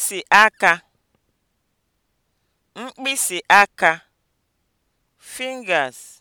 mkpịsị aka mkpịsị aka (fingers)